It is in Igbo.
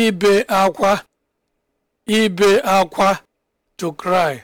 ibe akwa ibe akwa to cry